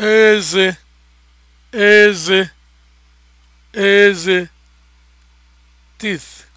eze eze eze teeth